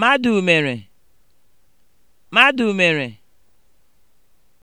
Madụ mere, Madụ mere